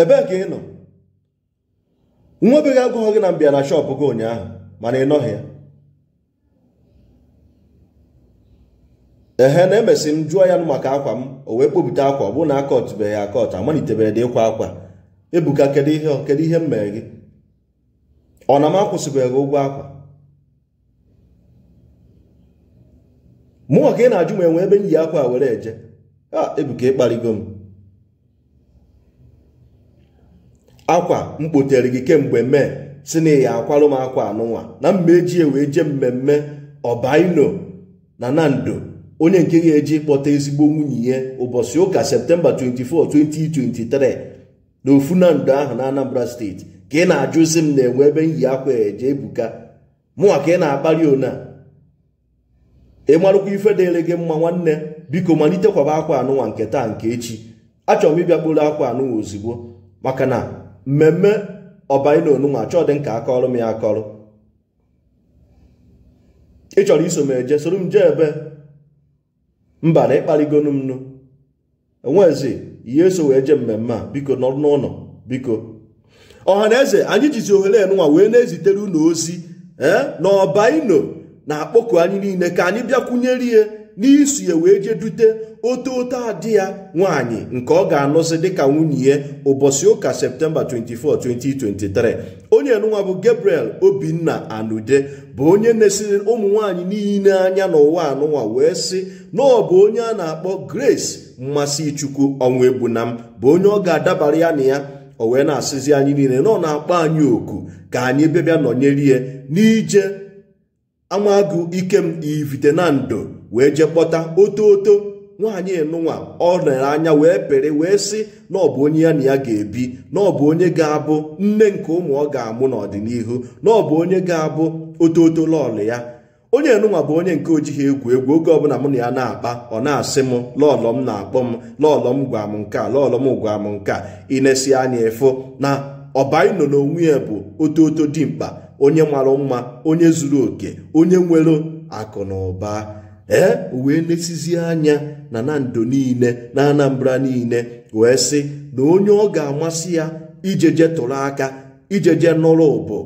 ebee ka ị nọ nwa obeghị agụghọ gị na mbịa na shọpụ gị ụnyaahụ mana ị nọghị ya ehe na emesị m jụọ ya maka akwa m o wee kpopụta akwa ọ bụrụ na akọtụbeghị ya akọtụ amalitebeghị dị ịkwa akwa ebuka kedu ihe kedu ihe m mere gị ọ na m akwụsịbeghị ụgwọ akwa Mụ ka ị na-ajụ m enwe ebe m yi akwa were eje a ah, ebuka ịkparịgo m akwa m kpotere gị kemgbe mee si na ya akwarụ m akwa anụnwa na mma eji wee jee mmemme ọbaino na nando onye nke ga-eji kpọta ezigbo nwunye ya ụbọchị ụka septemba 24 2023 na ofu nando ahụ na anambra steeti ka ị na-ajụzi m na enwe ebe m yi akwa eje ebuka mụnwa ka ị na-akpali ona ị marụkwa ife dịrị gị mma nwanne biko malitekwaba kwaba akwa anụnwa nke taa nke echi achọrọ m ịbịakporo akwa anụnwa ozugbo maka na mmemme ọbaina onunwa chọọ dị nka akọrọ m ya akọrọ ị chọrọ iso m eje soro m jee ebe mba na ịkparịgonu m nụ enwezi ihe eso wee jee mmemme a biko nọrọ n'ụlọ biko ọha na eze anyị jizi ohere enunwa wee na-ezitere ozi ee eh, na ọbaino na-akpọku anyị niile ka anyị bịakwunyere ihe n'isu ya wee jee dute ote ote adị ya nwaanyị nke ọ ga anụsị dịka nwunye ya ụbọchị ụka septemba 24 2023 onye nụnwa bụ gabriel obinna anude bụ onye na-esiri ụmụ nwaanyị niile anya n'ụwa anụnwa wee sị na ọ bụ onye a na-akpọ grace mmasị chukwu ọnwa egbuna m bụ onye ọ ga-adabara ya na ya o wee na-asịzi anyị niile na ọ na-akpọ anyị oku ka anyị bịabịa nọnyere ya n'ije amagụ ikem ndo wee je kpọta oto oto nwaanyị enụnwa ọ nere anya wee pere wee sị na ọ bụ onye ya na ya ga-ebi na ọ bụ onye ga-abụ nne nke ụmụ ọ ga-amụ n'ọdịnihu na ọ bụ onye ga-abụ ototo lọọlụ ya onye enụnwa bụ onye nke ojighị egwu egwu oge ọbụla mụ na ya na-akpa ọ na-asị m lọọlọ m na-akpọ m lọọlọ m gwa m nke a lọọlọ m gwa m nke a inesi anya ịfụ na ọbaị nọ n'onwe ya bụ ototo dimkpa onye mara mma onye zuru oke onye nwere akụ na ụba ee wee lesizie anya na na ndo niile na anambra niile wee sị na onye ọ ga-amasị ya ijeje tụrụ aka ijeje nọrọ bụ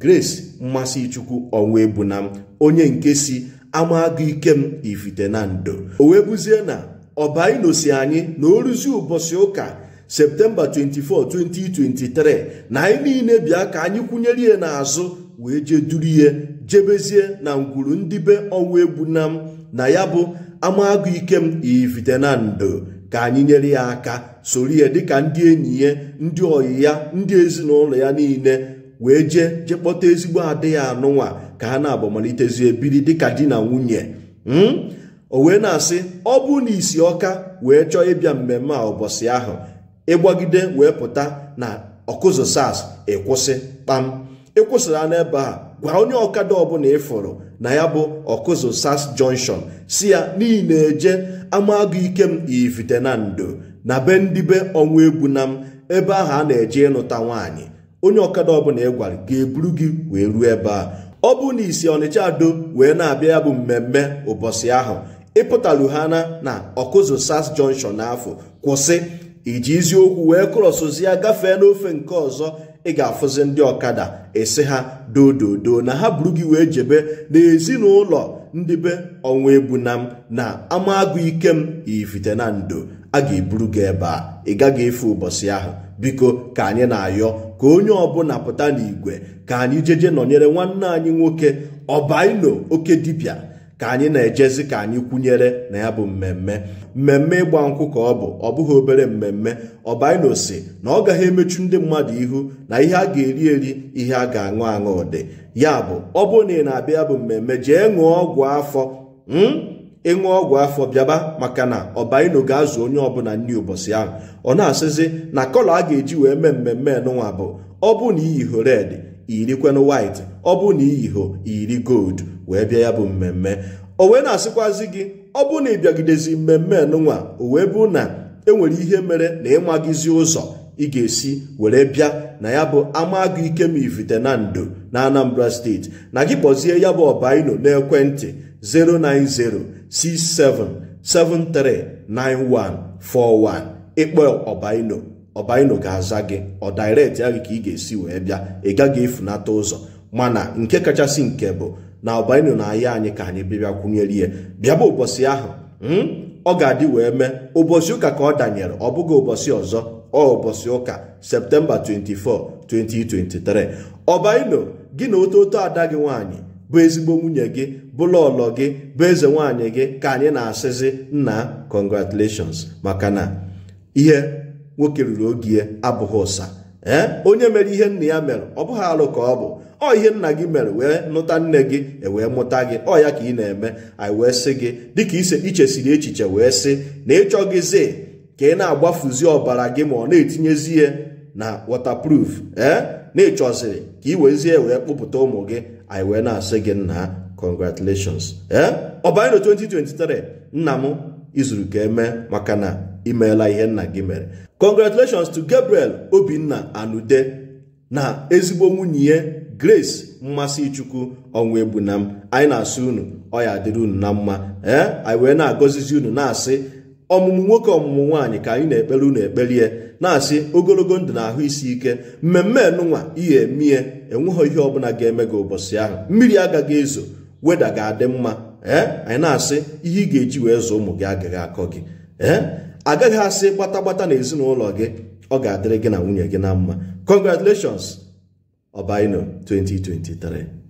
grace mmasị chukwu ọnwa na m onye nke si ama agụ ike m ifite na ndo o wee buzie na ọbainosi anyị na o ụbọchị ụka septemba 24 2023 na anyị niile bịa ka anyị kwụnyere ya n'azụ wee jee duru ihe jebezie na ngwuru ndibe be ọnwụ egbu na m na ya bụ amagụ na ndo ka anyị nyere ya aka soro ya dịka ndị enyi ya ndị ọyị ya ndị ezinụlọ ya niile wee jee jekpọta ezigbo adịghị anụnwa ka ha na-abụ malitezie biri dịka di na nwunye hmm? o wee na-asị ọ bụ na isi ọka wee chọọ ịbịa mmemme a ụbọchị ahụ ịgbagide wee pụta na ọkụzụ sas ịkwụsị kpam ịkwụsịra n'ebe a gwa onye ọkada ọbụla ịfụrụ na ya bụ ọkụzụ sas junction si ya n'ihi na eje amagụ ike m ivite na ndo na be ndibe ọnwa egwu na m ebe ahụ a na-eje ịnụta nwaanyị onye ọkada ọbụla ị gwara ga-eburu gị wee ruo ebe a ọ bụ na isi ọnịcha ado wee na-abịa ya bụ mmemme ụbọchị ahụ ịpụtalu ha na na ọkụzụ sars junction n'afọ kwụsị iji eziokwu wee ya gafee n'ofe nke ọzọ ị ga-afụzi ndị ọkada esi ha dododo na ha buru gị wee jebe n'ezinụlọ ndị be ọnwa ebunam na ama agụ ike m ifite na ndo a ga-eburu gị ebe a ị gaghị efe ụbọchị ahụ biko ka anyị na-ayọ ka onye ọbụla pụta n'igwe ka anyị jeje nọnyere nwanne anyị nwoke ọbaino oke dibịa ka anyị na-ejezi ka anyị kwụnyere na ya bụ mmemme mmemme ịgba nkwụ ka ọ bụ ọ bụghị obere mmemme ọbainosi na ọ gaghị emechu ndị mmadụ ihu na ihe a ga-eri eri ihe a ga-aṅụ aṅụ dị ya bụ ọ bụrụ na ị na-abịa ya bụ mmemme jee ṅụọ ọgwụ afọ hmm? ịṅụ ọgwụ afọ bịaba maka na ọbaino ga-azụ onye ọbụla nri ụbọchị ahụ ọ na-asịzi na kọlọ a ga-eji wee mee mmemme nụnwa bụ ọ bụ na iyi hore iyirikwenụ white ọ bụ na iyiho iri gold wee bịa ya bụ mmemme o wee na-asịkwazi gị ọ bụ na ịbịagidezi mmemme nụnwa o wee bụ na enwere ihe mere na ịmagizi ụzọ ị ga-esi were bịa na ya bụ ike ma ivite na Anambra steeti na gị kpọzie ya bụ ọbaino n'ekwentị 41 ịkpọ ọbaino ọbaino ga-aza gị ọ direct ya gị ka ị ga-esi wee bịa ị gaghị efunata ụzọ mana nke kachasị nke bụ na ọbaino na-aya anyị ka anyị bịbịa kwunyere ihe bịaba ụbọchị ahụ hmm, ọ ga-adị wee mee ụbọchị ụka ka ọ danyere ọ bụghị ụbọchị ọzọ ọ ụbọchị ụka septemba 24 2023 ọbaino gị na ototo ada gị nwaanyị bụ ezigbo nwunye gị bụla ọlọ gị bụ eze nwaanyị gị ka anyị na-asịzi nna congratulations maka na ihe nwoke ruru ogie abụghị ụsa ee onye mere ihe nna ya mere ọ bụghị alụ ka ọ bụ ọ ihe nna gị mere wee nụta nne gị ewee mụta gị ọ ya ka ị na-eme anyị wee sị gị dịka ise ichesiri echiche wee sị na ịchọghịzi ka ị na-agbafuzi ọbara gị ma ọ na-etinyezi ya na waterproof ee na-ịchọziri ka ị wezie wee kpụpụta ụmụ gị anyị wee na-asị gị nna congratulations ee ọ banyere 2023 nna m izuru ka eme maka na imeela ihe nna gị mere congratulations to Gabriel Obinna Anude na ezigbo nwunye Grace mmasị Mmasichukwu ọnwa Egbunam anyị na-asị unu ọ ya dịrị unu na mma ee eh? anyị wee na-agọzizi unu na-asị ọmụmụ nwoke ọmụmụ nwaanyị ka anyị na-ekpere unu ekperie na-asị ogologo ndụ na ahụ isi ike mmemme enụnwa ihe emie enweghị ihe ọbụla ga-eme gị ụbọchị ahụ mmiri agaghị ezo weda ga-adị mma ee eh? anyị na-asị ihe ị ga-eji wee zụ ụmụ gị agaghị akọ gị ee eh? agaghị asị gbatagbata na ezinụlọ gị ọ ga-adịrị gị na nwunye gị na mma congratulations ọbaino 2023